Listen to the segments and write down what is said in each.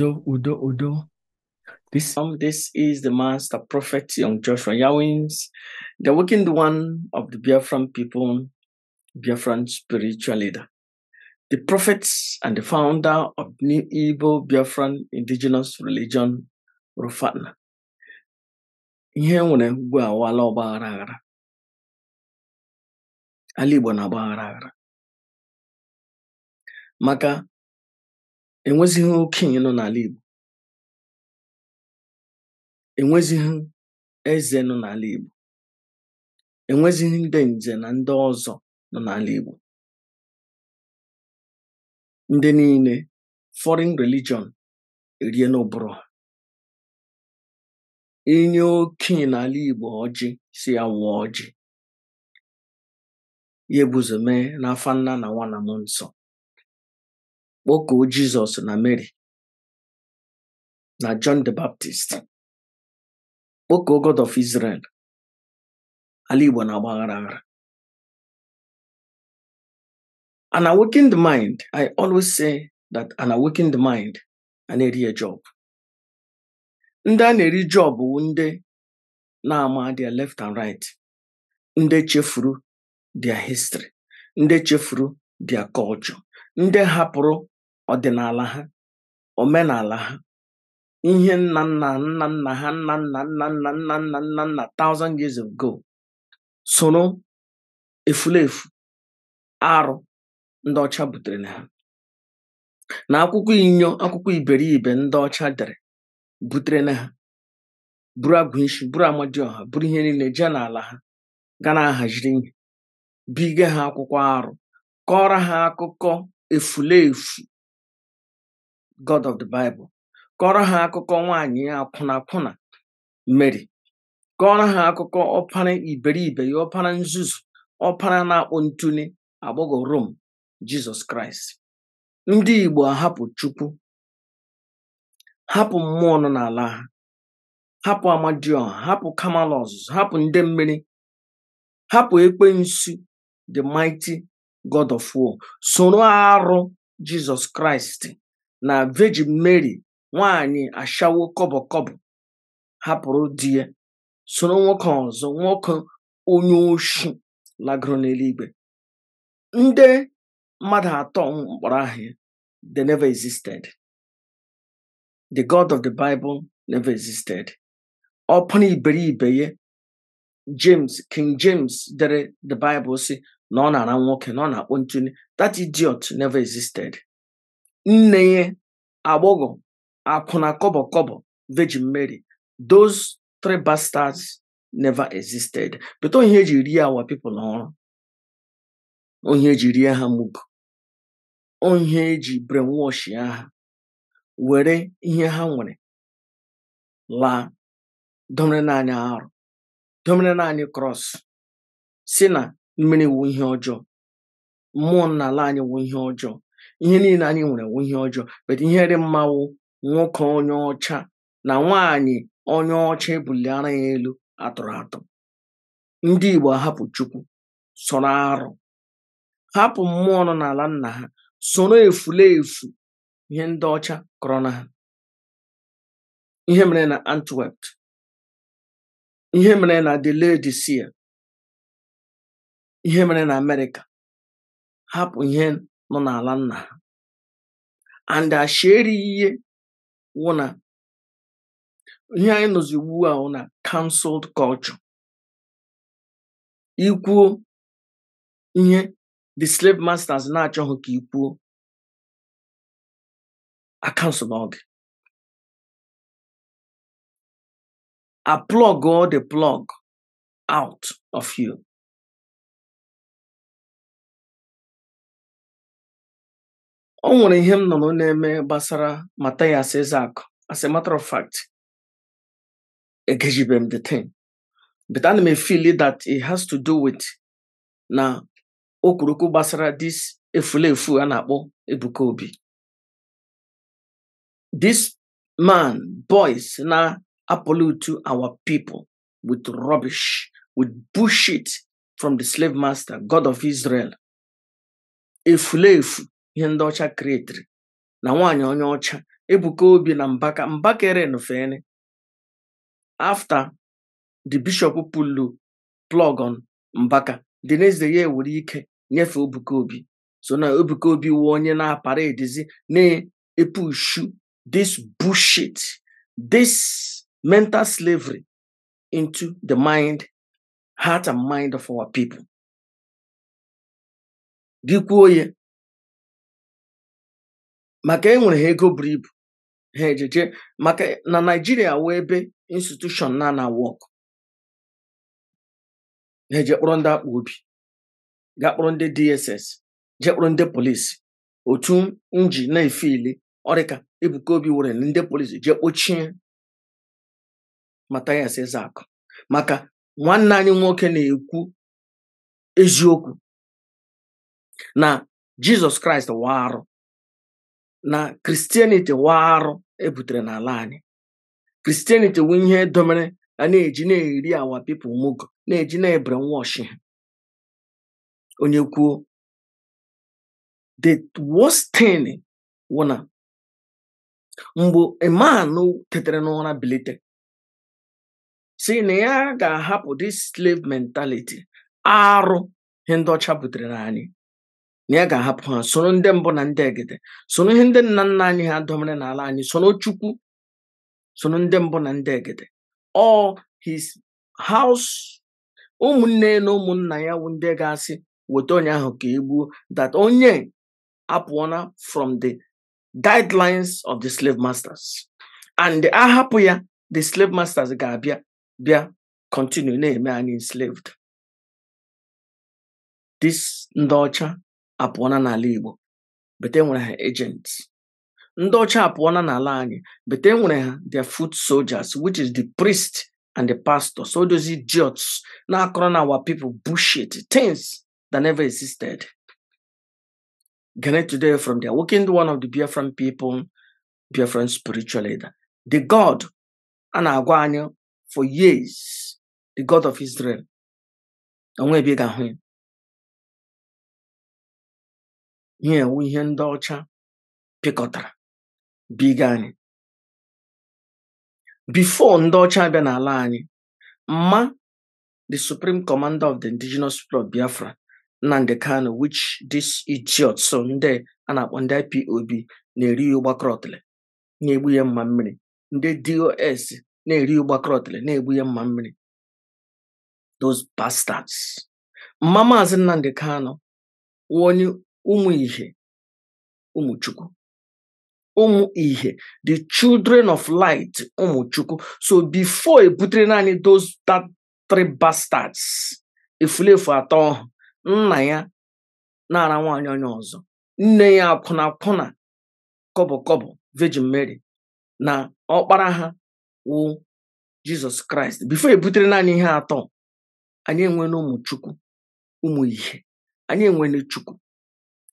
Udo, Udo, Udo. This um, this is the master prophet Young Joshua Yawins, the working one of the Biafran people, Biafran spiritual leader, the prophet and the founder of New Igbo Biafran indigenous religion, Rufatna. Ihe nwere mgbe awala ọgba aghara ala Igbo na-agba aghara maka enwezighi okenye nọ n'ala Igbo enwezighi eze nọ n'ala Igbo enwezighi ndị nze na ndị ọzọ nọ n'ala Igbo ndị niile foreign religion erie n'ụbụrụ ha inye okenye n'ala Igbo ọjị si ya wụọ ọjị ya ebuzo mee n'afọ nna na nwa na nsọ kpọkuo Jizọs na Mary na John the Baptist kpọkuo God of Israel ala Igbo na agbaghara aghara an awakened mind I always say that an awakened mind I na-eri a job ndị a na-eri job bụ ndị na-ama their left and right ndị chefuru their history ndị chefuru their culture ndị hapụrụ ọdịnala ha omenala ha ihe nna nna nna nna ha nna nna nna nna nna nna nna nna thousand years ago soro efulefu arụ ndị ọcha butere na ha na akwụkwọ inyo akwụkwọ iberibe ndị ọcha dere butere na ha buru agụishi buru amadioha buru ihe niile jee n'ala ha ga na-ahaziri ihe bige ha akwụkwọ arụ kọrọ ha akụkọ efulefu God of the Bible kọrọ ha akụkọ nwaanyị akwụna Mary kọrọ ha akụkọ ọpara iberibe ya ọpara nzuzu ọpara na-akpụ ntuli agbọghọ Rom Jizọs Kraịst ndị Igbo ahapụ Chukwu hapụ mmụọ nọ n'ala ha hapụ Amadioha hapụ Kamal ọzụzụ hapụ ndị mmiri hapụ ekwensu the mighty God of war soro arụ Jizọs Kraịst na Virgin Mary nwaanyị ashawo kọbọkọbọ hapụrụ di ya soro nwoke ọzọ nwoke onye oshi lagoro n'eluigwe ndị mmadụ atọ mkpọrọ aha never existed the god of the bible never existed ọ pụrụ iberibe ya James King James dere the Bible si na ọ na-ara nwoke na ọ na-akpọ ntuli that idiot never existed nne agbọghọ akwụna kọbọkọbọ kọbọ Virgin Mary those three bastards never existed pụta ihe eji rie awa pipo n'ọrụ onye eji rie ha mugu onye eji brainwash ya ha were ihe ha nwere laa domere naanị arụ domere naanị krọs si na mmiri wu ihe ọjọọ mmụọ nna ala anyị wu ihe ọjọọ ihe niile anyị nwere wụ ihe ọjọọ bet ihe dị mmanwụ nwoke onye ọcha na nwaanyị onye ọcha ara ya elu atụrụ atụ ndị Igbo hapụ Chukwu soro arụ hapụ mmụọ nọ n'ala nna ha soro efulefu ihe ndị ọcha kọrọ na ha ihe mere na Antwerp ihe mere na Laodicea ihe mere na Amerịka hapụ ihe nọ n'ala nna ha and ashi erighị ihe wụ na ihe anyị nọzi ugbu a na cancelled culture ikwuo ihe the slave masters na-achọghị ka ikwuo akansụl n'oge a plug all the plug out of you o nwere ihe m nọrọ na-eme gbasara Mathias Ezeaku as a matter of fact egejibe m the thing but ana m efili that it has to do with na okwurukwu gbasara this efulefu a na-akpọ Ebuka Obi this man boys na apolo to our people with rubbish with bullshit from the slave master god of Israel efulefu ihe ndị ọcha kiretiri na nwaanyị onye ọcha ebuka obi na mbaka mbakeren fene afta the bishop pulu plogon mbaka dị n'eze ya were ike nyefee ebuka obi so na ebuka obi wụ onye na-apara edizi na-epushu this bushit this mental slavery into the mind heart and mind of our people gị kwuo ya maka enwere ha ego buru ibu ha ejeje maka na naijiria wee ebe institushon na na wọk ha eje ndị akpa obi ga kpọrọ ndị dss je ndị polisi otu nji na-efe ile ọrịka ebuka obi were ndị polisi je kpochie matayas ezakụ maka nwanne anyị nwoke na-ekwu eziokwu na jizọs kraịst wa arụ na kristianiti waa arụ ebutere n'ala anyị kristianiti wụ ihe domere na na-eji na-eri awa pipụl mugo na-eji na-ebere nwa ọchị onye kwuo the worst mgbe iman tetere n'ụra bilite si na ya ga-ahapụ dis slave mentality arụ ihe ndị ọcha butere na anyị na ya ga-ahapụ ha soro ndị mbụ na ndị egede soro ihe ndị nna nna anyị ha dọmere n'ala anyị soro chukwu soro ndị mbụ na ndị egede all his house ụmụnne na ụmụnna ya wu ndị ga-asị weta onye ahụ ka e gbuo that onye apụọna from the guidelines of the slave masters and ahapụ ya the slave masters ga-abịa bịa continue na-eme anyị enslaved this ndị ọcha apụọna n'ala Igbo bete nwere ha agents ndị ọcha apụọna n'ala anyị bete nwere ha their foot soldiers which is the priest and the pastor so those idiots na-akọrọ na our people bullshit things that never existed Gane today from there working one of the Biafran people Biafran spiritual leader the God a na-agwa anyị for years the God of Israel onwe ebe ga ga-ahụ ya ihe ewu ihe ndị ọcha pịkọtara biga anyị bifo ndị ọcha abịa n'ala anyị mma the supreme commander of the indigenous club biafra nnamdi kano wich this idiot so ndị a na-akpọ ndị ipob na-eri ya na-egbu ya mma mmiri ndị dos na-eri ya na-egbu ya mma mmiri those mma maazi nnamdi kanu onye ụmụ ihe ụmụ ụmụ ihe the children of light ụmụchukwu so before ebutere naanị those that three bastards efulefu atọ ọhụ nna ya na-ara nwaanyị onye ọzọ nne ya akwụna akwụna kọbọ kọbọ virgin mary na ọkpara ha wụ jizọs kraịst bifo ebutere naanị ihe atọ anyị enwere ụmụchukwu ụmụ ihe anyị enwere chukwu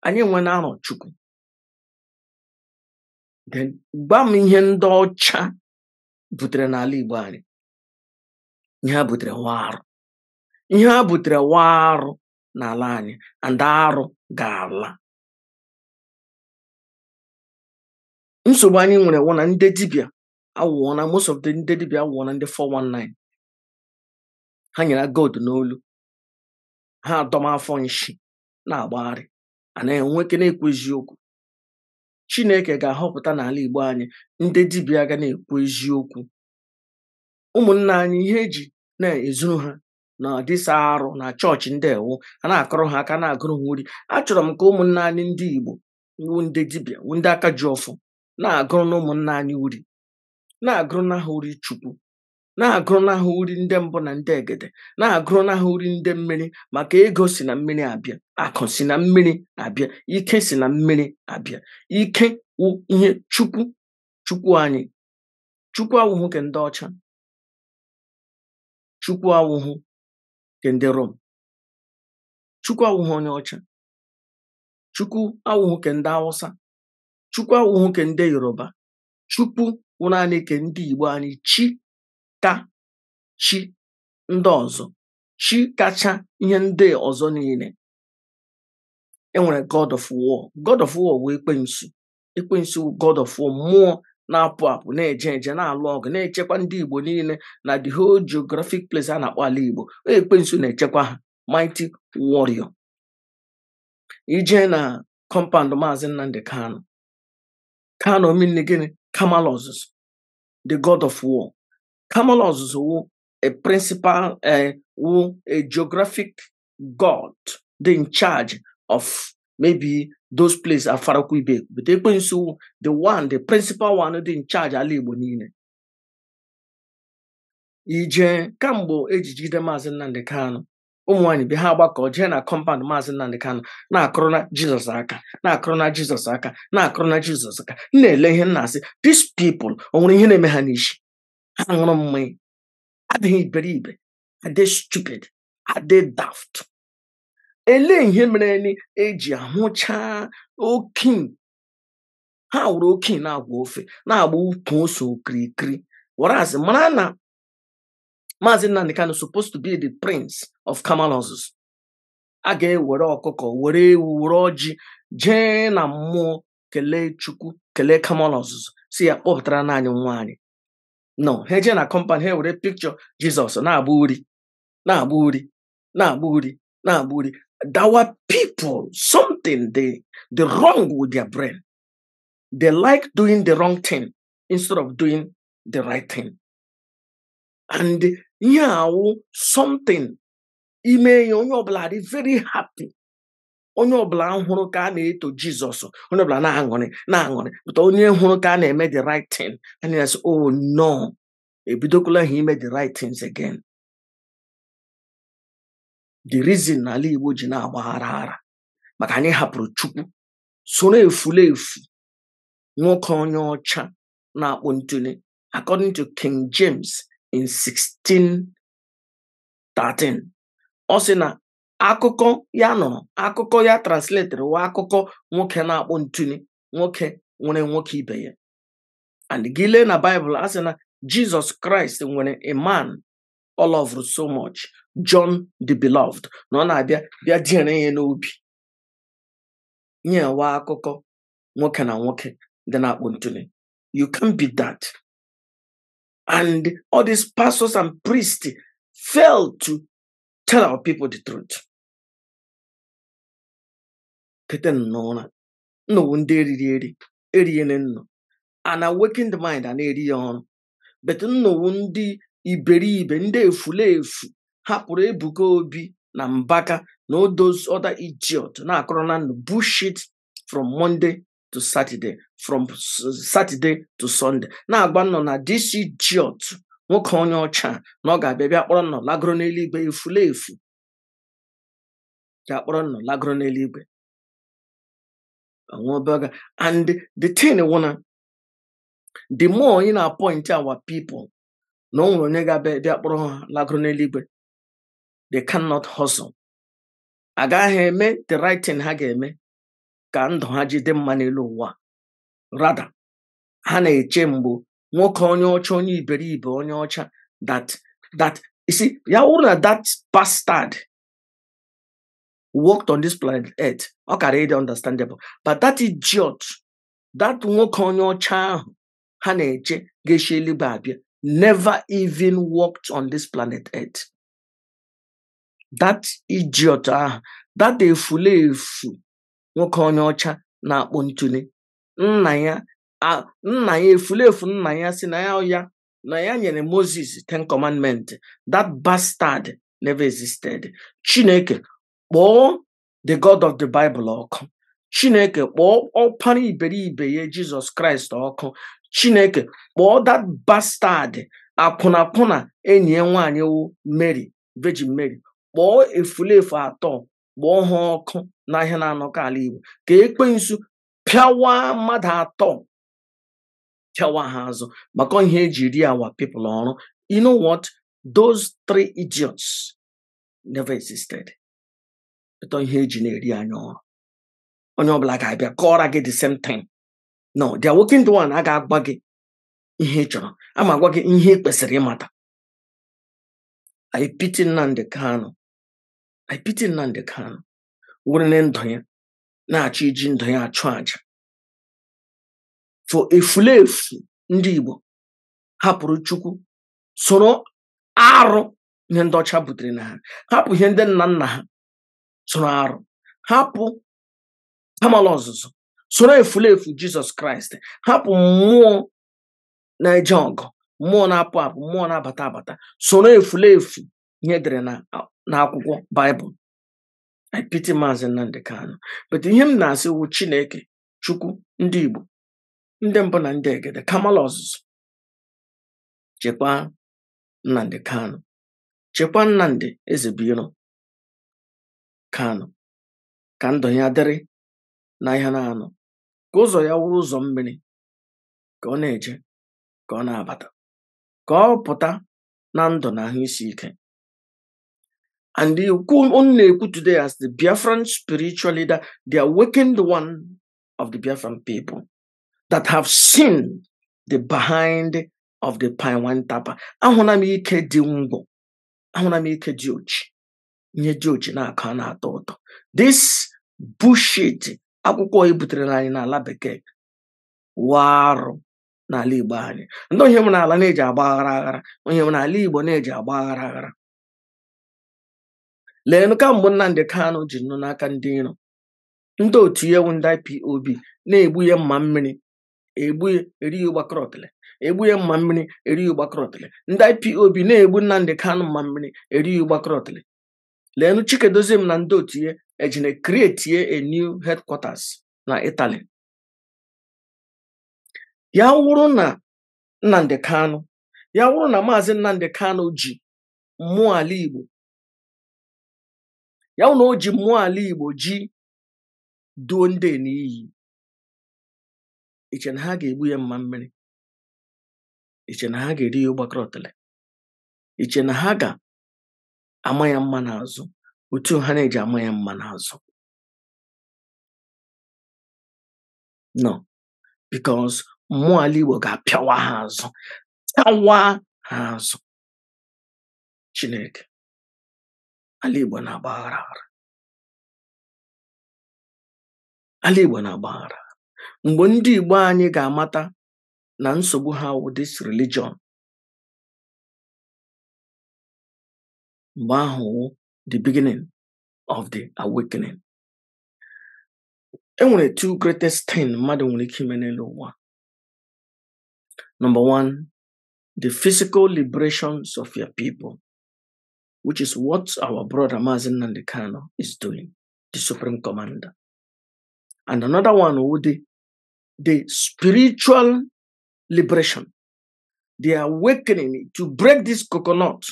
anyị nwe na-anọ Chukwu gwa m ihe ndị ọcha butere n'ala Igbo anyị ihe ha butere nwa arụ ihe ha butere nwa arụ n'ala anyị ndị arụ ga-ala nsogbu anyị nwere wụ na ndị dibịa awụọ na most of the ndị dibịa awụọ na ndị 419 ha nyere gold n'olu ha adọma afọ nshi na-agbagharị anaghị enweke na-ekwu eziokwu chineke ga-ahọpụta n'ala igbo anyị ndị dibịa ga na-ekwu eziokwu ụmụnna anyị ihe eji na-ezuru ha na dịsa arụ na chọọchị ndị ewu a na-akọrọ ha aka na-agụrụ ha uri achọrọ m ka ụmụnna anyị ndị igbo wu ndị dibịa wu ndị aka ji ọfụ na-agụrụ na ụmụnna anyị uri na-agụrụ na ha uri chukwu na-agụrụnahụ uri ndị mbụ na ndị egede na-agụrụnahụ uri ndị mmiri maka ego si na mmiri abịa akụ si na mmiri abịa ike si na mmiri abịa ike wụ ihe chukwu chukwu anyị chukwu awụhụ nke ndị ọcha chukwu awụhụ nke ndị rom chukwu awụhụ onye ọcha chukwu awụhụ nke ndị awụsa chukwu awụhụ nke ndị yoruba chukwu wụ naanị ndị igbo anyị chi ka chi ndị ọzọ chi kacha ihe ndị ọzọ niile enwere god of war god of war wee ekwensu ekwensu god of war mmụọ na-apụ apụ na-eje eje na-alụ ọgụ na-echekwa ndị igbo niile na the whole geographic place a na-akpọ ala igbo e ekwensu na-echekwa ha mighty warrior ije na compound maazị nnamdị kano kano mmiri gịnị kamal ọzụzụ the god of war Common ọzụzụ wụ a principal uh, eh, wụ a geographic god dị in charge of maybe those places afarakwa ibe but ekwensu wụ the one the principal one dị in charge ala Igbo niile ije kamgbe eji jide maazị Nnamdi Kanu ụmụnwaanyị bi ha gbakọ jee na kọmpand maazị Nnamdi Kanu na-akụrụ na Jizọs aka na-akụrụ na Jizọs aka na-akụrụ na Jizọs aka na-ele ihe nna asị these people o nwere ihe na-eme ha n'isi aṅụrụ mmanya adịghị iberibe adị stupid adị daft elee ihe mere eji ahụcha oke ha wụrụ okin na-agwa ofe na-agba ukwu ose okirikiri whereas mara na maazị nnamdị kanụ supposed to be the prince of kamalozuz a ga-ewere ọkụkọ were ewu were ọjị jee na mmụọ kelee chukwu kelee kamalozuz si ya kpọpụtara naanị nwa no ha eje na compound ha were picture jizọs na-agba uri na-agba uri na-agba uri na-agba uri our people something they the wrong with their brain they like doing the wrong thing instead of doing the right thing and ihe awụ oh, something ime ya onye ọbụla dị very happy onye ọbụla hụrụ ka a na-eto jizọs onye ọbụla na-aṅụrị na-aṅụrị pụta onye hụrụ ka a na-eme the right thing and yes oh no ebidokwala ha ime the right things again the reason na ala igbo ji na-agbaghara ara maka anyị hapụrụ chukwu soro efulefu nwoke onye ọcha na-akpụ ntuli according to king james in 1613 ọ sị na akụkọ ya nụrụ akụkọ ya transletere wa akụkọ nwoke na-akpọ ntụnye nwoke nwere nwoke ibe ya and gị lee na baịbụl a sị na jizọs kraịst nwere a man so much john the beloved na ọ na-abịa bịa diere ya n'obi nyewa akụkọ nwoke na nwoke dị na akpụ ntụnye you can be that and all these pastors and priests fail to tell our people the truth kete n'ụra nna owu ndị eriri eri erighene nnọ ana waking mind a na-eri ya ọrụ bet nnowu ndị iberibe ndị efulefu hapụrụ ebuka obi na mbaka na odos other idiot na-akọrọ na ndụ bushit from monday to saturday from saturday to sunday na-agba nnọ na this idiot nwoke onye ọcha na ọ ga-abịa bịa kpọrọ nnọ lagoro n'eluigwe efulefu ga-akpọrọ nnọ lagoro n'eluigwe I burger. And the thing I wanna, the more you know, appoint our people, no one nega be lagronelibwe. They cannot hustle. Agaghị eme the right thing ha ga-eme ka ndụ ha jide mma n'elu ụwa. Rather, ha na-eche mgbu nwoke onye ọcha onye iberibe onye ọcha that that you see ya wụrụ na that bastard walked on this planet earth ọ kara ịdị understandable but that idiot that nwoke onye ọcha ahụ ha na-eche ga-eshi eluigwe abịa never even walked on this planet earth that idiot ahụ that efulefu nwoke onye ọcha na-akpọ ntule nna ya nna ya efulefu nna ya si na ya ya na ya nyere Moses ten commandment that bastard never existed chineke kpọọ the god of the bible ọkụ chineke kpọọ ọkpara iberibe ya jizọs kraịst ọkụ chineke kpọọ that bastard akwụnakwụna enyi ya nwaanyị wu mary virgin mary kpọọ efulefu atọ kpọọ ha ọkụ n'ahịa na-anọkọ ala igbo ka ekpensu pịawa mmadụ atọ pịawa ha azụ maka ihe eji ri awa people ọrụ you know what those three idiots never existed ịtọ ihe eji na-eri anya ọrụ onye ọbụla ga-abịa kọọra gị the same thing no dia working the one a agwa gị ihe ị chọrọ a ma gị ihe ị kwesịrị ịmata I pity Nnamdi Kanu I ndụ ya na-achọ iji ndụ ya achụ àjà fo efulefu ndị Igbo hapụrụ Chukwu soro arụ ihe ndị ọcha butere na ha hapụ ihe ndị nna nna ha tụrụ arụ hapụ kamala ọzụzụ soro efu jizọs kraịst hapụ mmụọ na-eje ọgụ mmụọ na-apụ apụ mmụọ na-abata abata soro efu ihe dere na akwụkwọ baịbụl ipiti maazị Nnamdi Kanu but ihe m na-asị wu chineke chukwu ndị igbo ndị mbụ na ndị egede kamala ọzụzụ chekwaa Nnamdi Kanu chekwaa Nnamdi Ezebiro ka ka ndụ ya dịrị na ihe na-anọ ka ụzọ ya wụrụ ụzọ mmiri ka ọ na-eje ka ọ na-abata ka ọ pụta na ndụ na ahụ isi ike and unu na-ekwu today as the Biafran spiritual leader the awakened one of the Biafran people that have seen the behind of the wine Tapa ahụla m ike dị ngwọ ahụla m ike dị ochi ihe jiochi na-akọ a na-atọ ụtọ this bullshit akwụkwọ e butere anyị n'ala bekee warụ n'ala igbo anyị ndị onye nwere ala na-eji agba aghara aghara onye nwere ala igbo na-eji agba aghara aghara leenụ ka mgbe Nnamdi Kanu ji nụ n'aka ndị nro ndị otu ihe ewu ndị IPOB na-egbunye mma mmiri egbuye erighi ụgbakọrọtịlị egbuye mma mmiri erighi ụgbakọrọtịlị ndị IPOB na-egbu nnamdị kanụ mma mmiri erighi ụgbakọrọtịlị leenụ Chikedoziem na ndị otinye ejine create a e new headquarters na Italy ya wụrụ na Nnamdi Kanu ya wụrụ na maazị Nnamdi Kanu ji mmụọ ala Igbo ya wụ na o ji mmụọ ala Igbo ji duo ndị n'iyi iche na ha ga-egbu ya mma mmiri iche na ha ga-eri ya ụgbakọrọtele iche na ha ga ama ya mma n'azụ otu ha na-eji ama ya mma n'azụ no because mmụọ ala igbo ga-apịawa ha azụ tawa ha azụ chineke ala igbo na-agbaghara aghara ala igbo na-agbaghara mgbe ndị igbo anyị ga-amata na nsogbu ha wụ this religion Mahu, the beginning of the awakening. And one of the two greatest things Madam, nwere ike ime know one. Number one, the physical liberations of your people, which is what our brother Mazen Nandikano is doing, the Supreme Commander. And another one would be the spiritual liberation, the awakening to break this coconut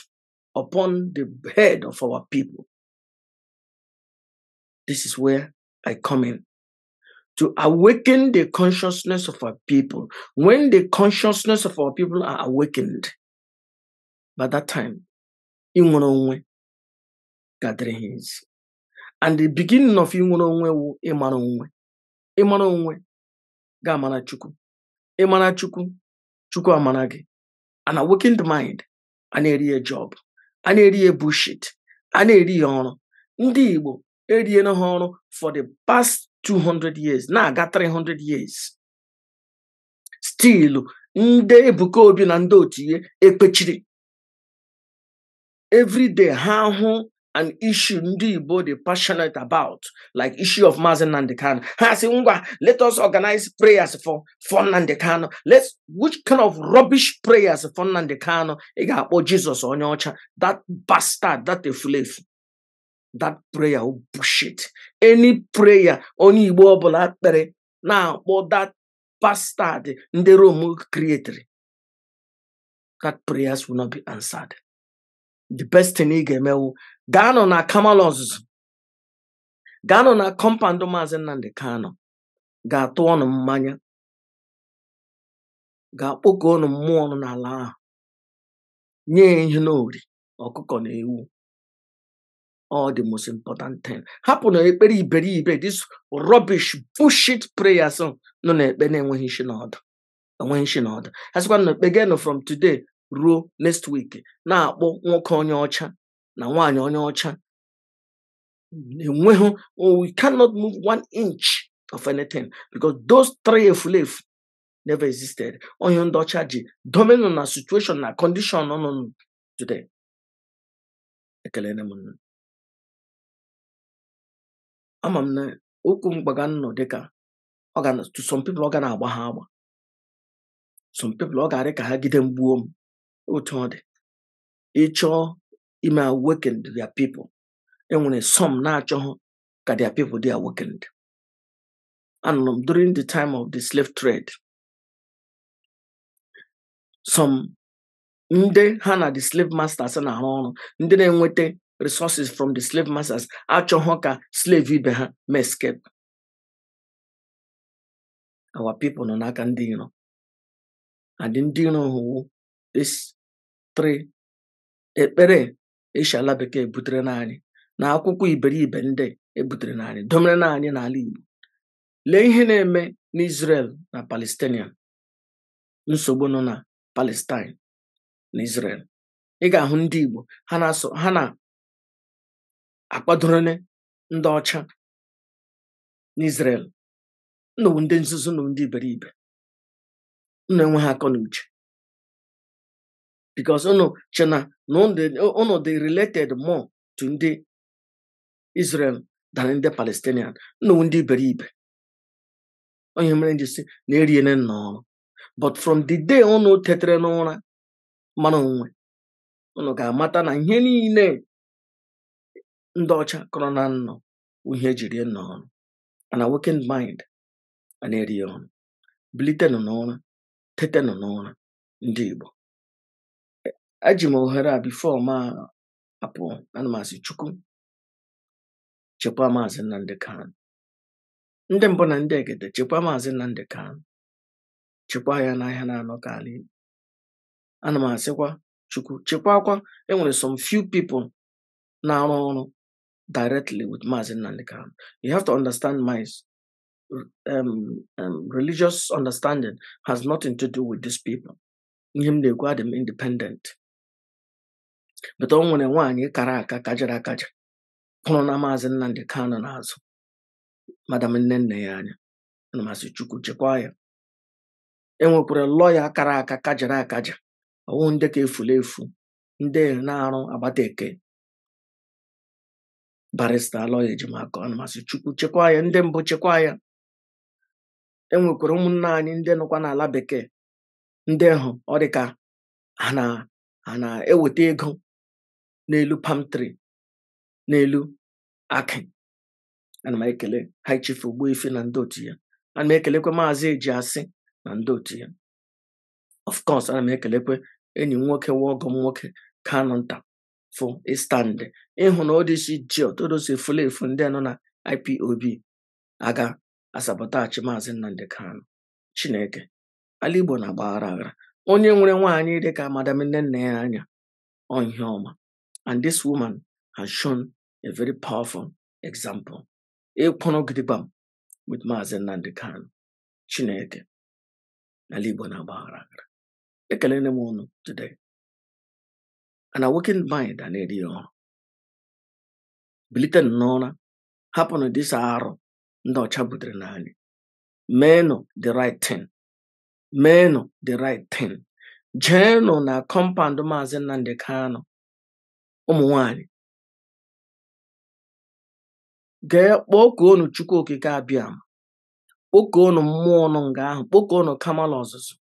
upon the head of our people. This is where I come in. To awaken the consciousness of our people. When the consciousness of our people are awakened, by that time, Inwononwe gathering hands. And the beginning of Inwononwe wu Imanonwe. Imanonwe ga amana Chukwu. Imana amana An awakened mind, an area job. a na-eri ya bushit a na-eri ya ọrụ ndị igbo eriela ha ọrụ for the past 200 years na-aga 300 years stilu ndị ebuka obi na ndị otu ihe ekpechiri everyday ha hụ an issue ndị Igbo passionate about like issue of Mazen and Kanu ha si let us organize prayers for for Nnamdi let's which kind of rubbish prayers for Nnamdi Oh, Jesus, that bastard that efulefu that prayer will oh bullshit any prayer onye Igbo ọbụla Now, for that bastard ndị Rome creator that prayers will not be answered the best thing ị ga-emewu gaanụ na kamala ọzụzụ gaanụ na kọmpandụ maazị nnamdị kano ga-atụ ọnụ mmanya ga-akpọkọ ọnụ mmụọ ọnụ n'ala ahụ nye ihe n'ori ọkụkọ na ewu all the most important thing hapụ na ekpere iberibe this rubbish bullshit prayers nọ na-ekpe na-enweghị n'ọdụ enweghị n'ọdụ na ekpe from today ruo next week na-akpọ nwoke onye ọcha na nwaanyị onye ọcha enweghị we cannot move one inch of anything because those three efulefu never existed onye ndị ọcha ji domino na situation na condition nọ today ekele m ama m na okwu mgbaga nnọ dịka to some people ọ ga na-agba ha agba some people ọ ga-adị ka ha gide m gbuo m otu ọ dị ịchọọ ime awakened their people enwere some na-achọghị ka dia people di awakened anụrụ m during the time of the slave trade some ndị ha na the slave masters na-arụ ọrụ ndị na-enweta resources from the slave masters achọghọ ka slave ibe ha ma escape our people nọ n'aka ndị iro and ndị iro hụwo 3. Ekpere eshàla bekee butere n'anyị na akwụkwọ iberibe ndị e butere n'anyị domere n'anyị n'ala Igbo lee ihe na-eme n'Israel na Palestinian nsogbu nọ na Palestine na Israel ị ga-ahụ ndị Igbo ha na-asọ ha ndị ọcha n'Israel nnọwu ndị ndị iberibe nna enwe ha akọ bikos unu che na unu dị related more to ndị Israel than ndị Palestinian nnụ ndị iberibe onye mere nji si na eriene nnọọ but from the day unu oh tetere n'ụra mara onwe unu oh ga-amata na ihe niile ndị ọcha kọrọ na nnọ ihe ejiri nnọọ and awakened mind ana na-eri ọnụ bilitenụ n'ụra tetenụ n'ụra ndị Igbo eji m ohere a bifo ma apụ ana m asị chukwu chekwaa maazị Nnamdi Kanu ndị mbụ na ndị egede chekwaa maazị Nnamdi Kanu chekwaa ya n'ahịa na-anọ ka ala Igbo ana m chukwu chekwakwa enwere some few people na-arụ ọrụ directly with maazị Nnamdi Kanu you have to understand my um, um, religious understanding has nothing to do with these people ihe m na-ekwu adị independent bụta o nwere nwaanyị kara aka kajara akaja hụrụ na maazị Nnamdi kano n'azụ madam nne nne ya anya ana masị Chukwu chekwaa ya e nwekwara lọya kara aka kajara akaja ọwụ ndị ka efula efu ndị na-arụ agbata eke barista lọya ejimakọ ana masị Chukwu chekwaa ya ndị mbụ chekwaa ya e ụmụnne anyị ndị nọkwa n'ala bekee ndị hụ ọ dịka ha na-eweta ego n'elu palm tree n'elu akị ana m ekele high chief ife na ndị otu ya ana m ekelekwe maazị eji asị na ndị otu ya of course ana m ekelekwe enyi m nwoke wa m nwoke kanụ nta fụ ịstandị e ịhụ na odisi ji otodosi efule efu ndị nọ na ipob aga asabọtachi maazị nnamdị kanụ chineke ala igbo na-agbaghara aghara onye nwere nwaanyị dịka madam nne nna ya anya ọhịa ọma And this woman has shown a very powerful example. Ịkpọnọgidebam with Maazị Nnamdi Kanu Chineke na Igbo na-agba aghara aghara. m ụnụ today. An awakened mind and na-eri ọhụrụ. Bilite n'ụra na dịsa arụ ndị ọcha butere n'anyị. Meenụ the right thing. Meenụ the right thing. Jeenụ na kọmpand Maazị Nnamdi Kanu ụmụ̀ nwaànyị̀ gee kpọkuonu chukwu okike abịam kpọkuonu mmụọ nọ nga ahụ kpọkuonu kamala ọzụzụ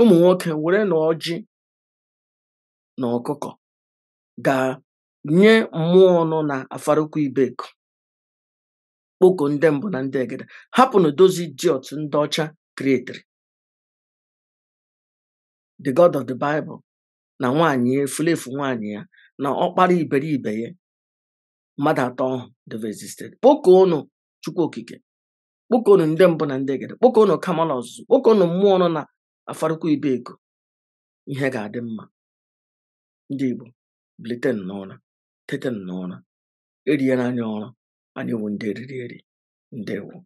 ụmụ nwoke were na ọjị na ọkụkọ gaa nye mmụọ nọ na afarụkwa ibeko kpoko ndị mbụ na ndị egede hapụ na dozi idiot ndị ọcha kreetiri the god of the bible na nwanyị e, ya efulefu nwanyị ya na ọkpara iberibe ya mmadụ atọ ahụ devresisted kpọkọ ọnụ chukwu okike kpọkọ ọnụ ndị mbụ na ndị gede kpọkọ kama na ọzụzụ kpọkọ ọnụ mmụọ nọ na afarụkwa ibe ego ihe ga-adị mma ndị igbo bliten n'ụra tete n'ụra eriela anya ọrụ anyị wu ndị eriri eri ewu.